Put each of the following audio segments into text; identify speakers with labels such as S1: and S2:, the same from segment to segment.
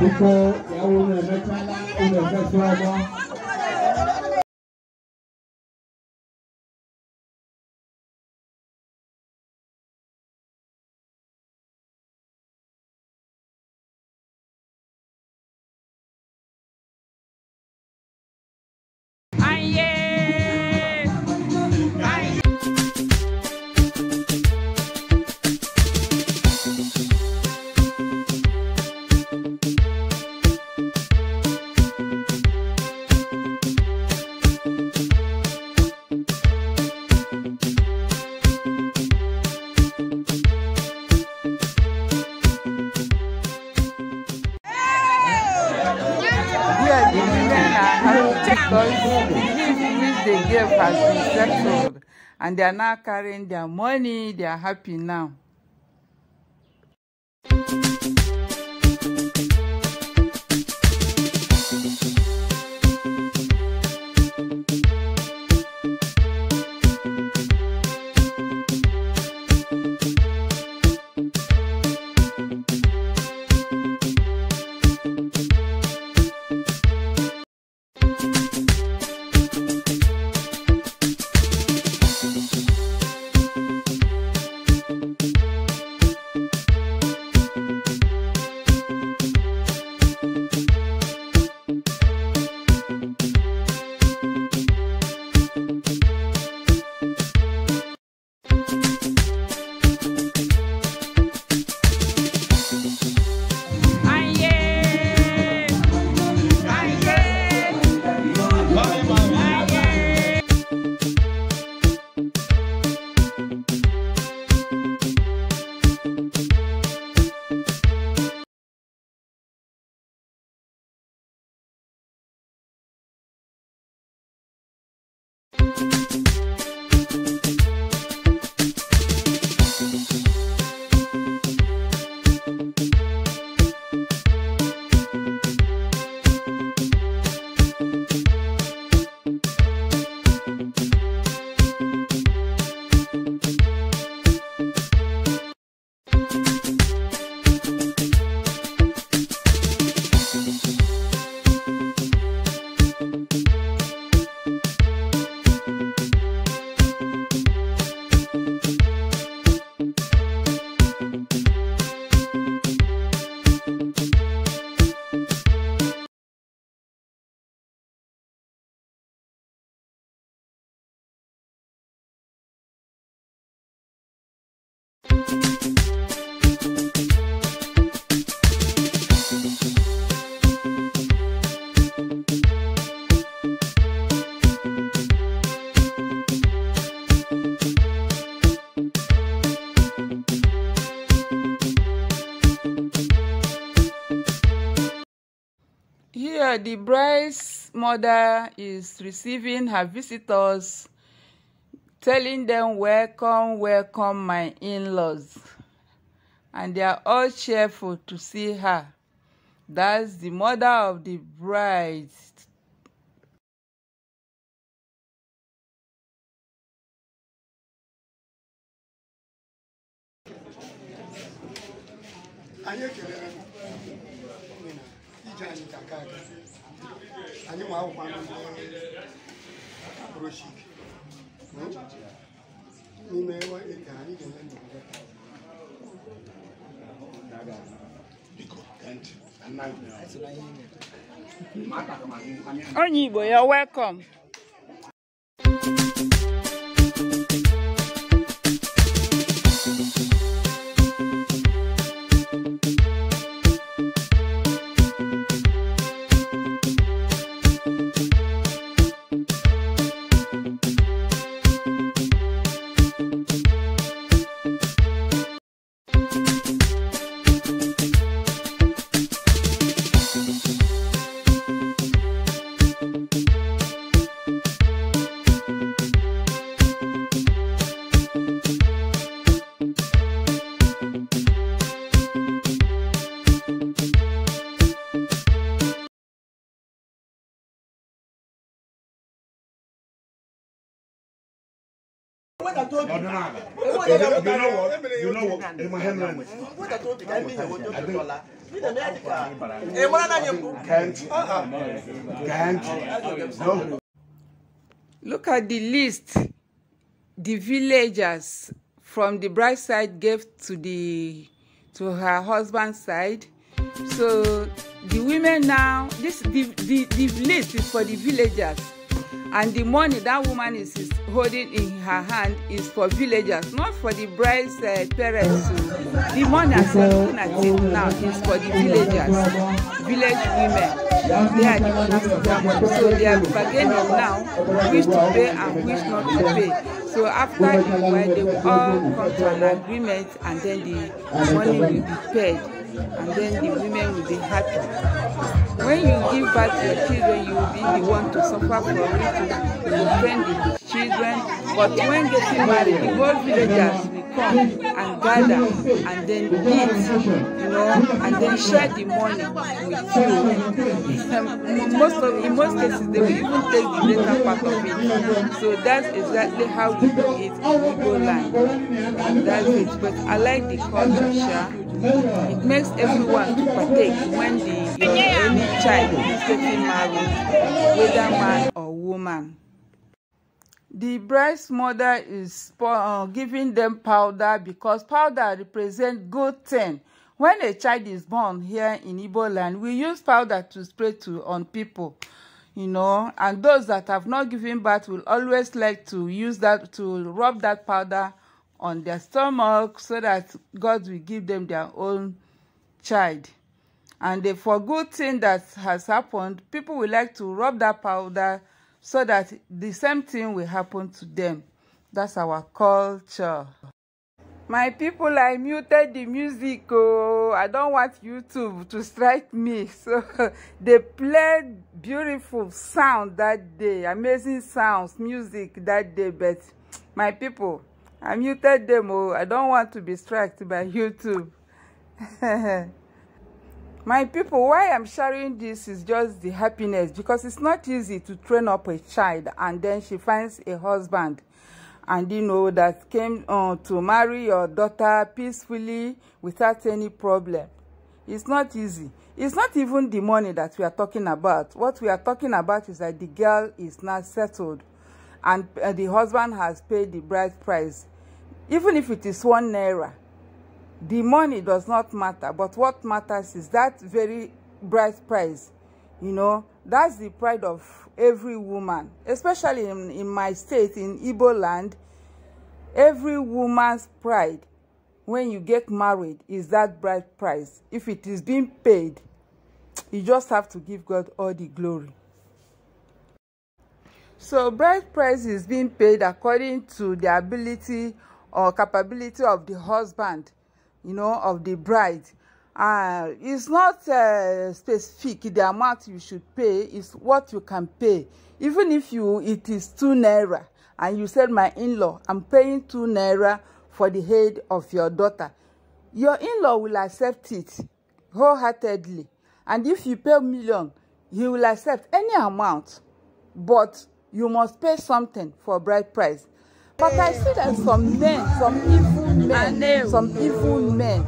S1: 你说，下午能不能加拉？能不能加 historic building which they gave has been settled
S2: and they are now carrying their money. They are happy now. the bride's mother is receiving her visitors, telling them, Welcome, welcome, my in laws. And they are all cheerful to see her.
S1: That's the mother of the bride anyị
S2: anyi welcome Can't. Can't. No. Look at the list the villagers from the bride side gave to the to her husband's side. So the women now this the, the, the list is for the villagers and the money that woman is, is holding in her hand is for villagers not for the bride's uh, parents o the money as we are looking at now is for the villagers village women they are the ones who that money so they are bargaining now which to pay and which not to pay so after the wedding they will all come to an agreement and then the money will be paid and then the women will be happy. When you give birth to your children, you will be the one to suffer for it, to defend the children. But when getting married, the whole villagers will come and gather and then eat, you know, and then share the money with you. most of, in most cases, they will even take the later part of it. So that's exactly how we do it in Igbo land. And that's it. But I like the culture, It makes everyone to partake when the child is getting married, whether man or woman. The bride's mother is uh, giving them powder because powder represents good thing. When a child is born here in Igbo land, we use powder to spray to on people, you know, and those that have not given birth will always like to use that to rub that powder on their stomach so that God will give them their own child and they, for good thing that has happened people will like to rub that powder so that the same thing will happen to them that's our culture my people i muted the music oh i don't want youtube to strike me so they played beautiful sound that day amazing sounds music that day but my people i muted them oh i don't want to be struck by youtube My people, why I'm sharing this is just the happiness because it's not easy to train up a child and then she finds a husband and you know that came uh, to marry your daughter peacefully without any problem. It's not easy. It's not even the money that we are talking about. What we are talking about is that the girl is now settled and uh, the husband has paid the bride price. Even if it is one naira, The money does not matter, but what matters is that very bright price. You know, that's the pride of every woman, especially in, in my state, in Ibo land. Every woman's pride when you get married is that bright price. If it is being paid, you just have to give God all the glory. So bride price is being paid according to the ability or capability of the husband you know, of the bride. Uh, it's not uh, specific the amount you should pay is what you can pay even if you it is two naira and you said my in-law i'm paying two naira for the head of your daughter your in-law will accept it wholeheartedly and if you pay million he will accept any amount but you must pay something for bride price but i see that some men some people men, some evil men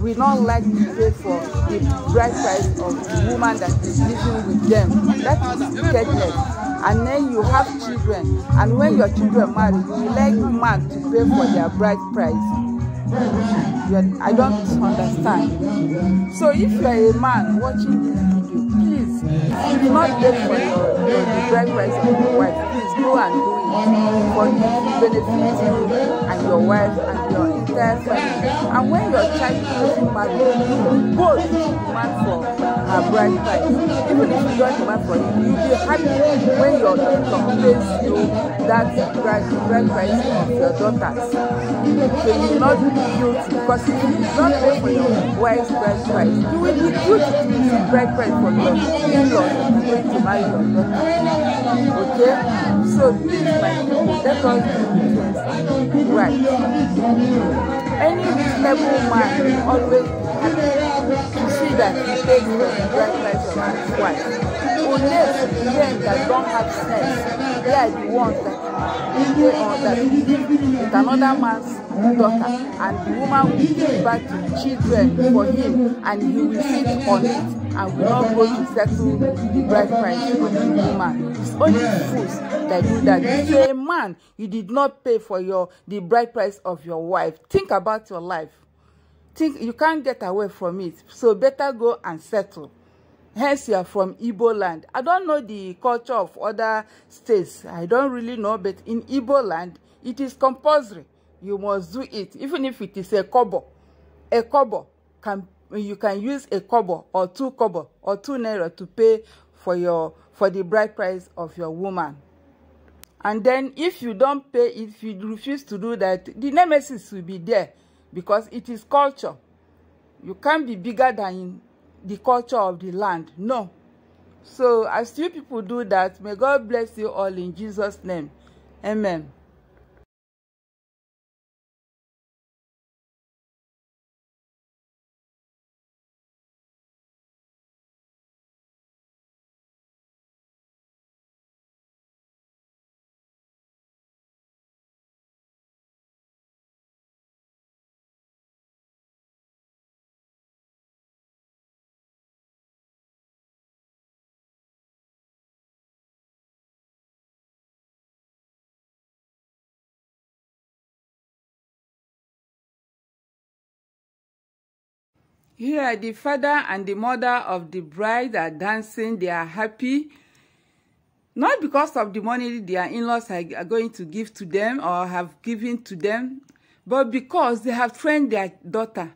S2: will not like to pay for the bride price of the woman that is living with them. That is wickedness. And then you have children, and when your children marry, you like man to pay for their bride price. I don't understand. So if you're a man watching this
S1: video, please,
S2: do not wait for your breakfast of your wife. Please go and do it for you benefit you and your wife and your entire family. And when your child is married, both man, for uh, brand price. Even if you don't buy for you, you'll be happy when your income pays you that brand, brand price of your daughters. So you will not be guilty because if you do not pay for your wife's brand price, you will be guilty to receive brand price for your in-laws that are going to marry your daughter. Okay? So please, my people, let us do
S1: things right
S2: any reasonable man always see that he takes the right life of his wife. Only men that don't have sense, on that with another man's daughter, and the woman will give back to children for him, and he will sit on it and will not go to settle the bride price with the woman.
S1: It's only fools
S2: that do that. If you're a man, you did not pay for your the bride price of your wife. Think about your life. Think you can't get away from it. So better go and settle hence you are from Ibo land. I don't know the culture of other states. I don't really know, but in Ibo land, it is compulsory. You must do it, even if it is a kobo. A kobo, can, you can use a kobo or two kobo or two naira to pay for, your, for the bride price of your woman. And then if you don't pay, if you refuse to do that, the nemesis will be there because it is culture. You can't be bigger than the culture of the land. No. So as you people do that, may God bless you all
S1: in Jesus' name. Amen. Here, the father and the mother
S2: of the bride are dancing. They are happy. Not because of the money their in-laws are, going to give to them or have given to them, but because they have trained their daughter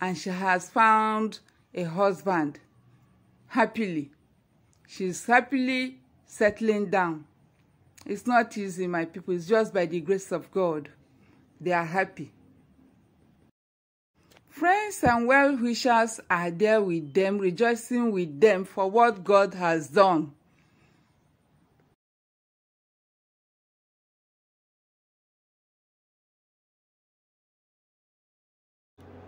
S2: and she has found a husband happily. She's happily settling down. It's not easy, my people. It's just by the grace of God. They are happy. Friends and well wishers are there with them,
S1: rejoicing with them for what God has done.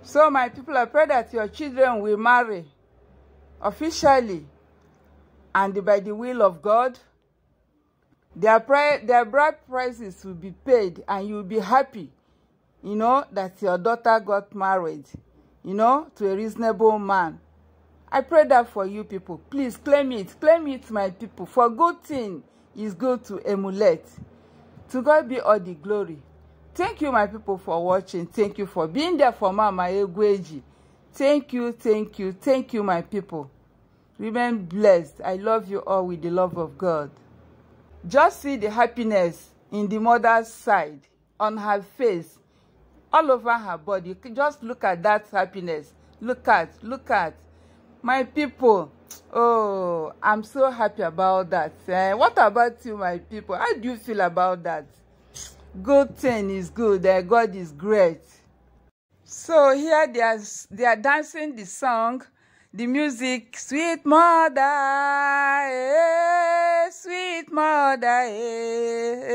S1: So, my people, I pray that your children will marry
S2: officially and by the will of God. Their, pri their bride prices will be paid and you will be happy you know, that your daughter got married, you know, to a reasonable man. I pray that for you people. Please claim it. Claim it, my people. For good thing is good to emulate. To God be all the glory. Thank you, my people, for watching. Thank you for being there for Mama Egweji. Thank you, thank you, thank you, my people. Remain blessed. I love you all with the love of God. Just see the happiness in the mother's side, on her face, all over her body just look at that happiness look at look at my people oh i'm so happy about that eh? what about you my people how do you feel about that good thing is good eh? god is great so here they are they are dancing the song the music sweet mother eh, sweet mother eh, eh.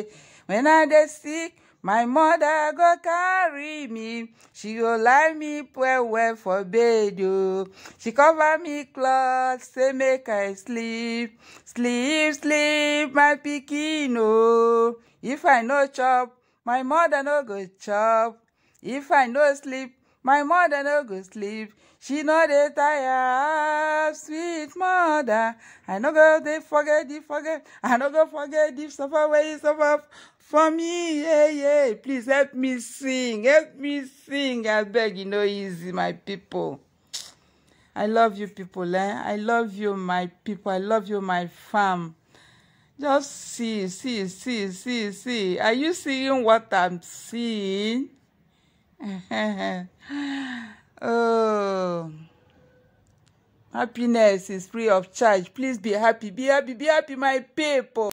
S2: eh. when I'm sick My mother go carry me. She go lie me well well for bed, You. Oh. She cover me cloth, say make I sleep. Sleep, sleep, my pikin, oh. If I no chop, my mother no go chop. If I no sleep, my mother no go sleep. She no dey tire, sweet mother. I no go dey forget, dey forget. I no go forget the suffer where you suffer for me yeah yeah please help me sing help me sing i beg you no easy my people i love you people eh? i love you my people i love you my fam. just see see see see see are you seeing what i'm seeing oh
S1: happiness is free of charge please be happy be happy be happy my people